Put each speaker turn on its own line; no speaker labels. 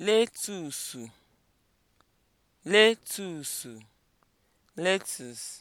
letusu letusu Letus.